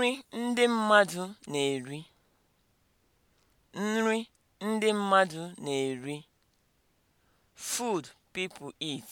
Nri ndị mmadụ na-eri Nri ndị mmadụ na-eri. Food people eat.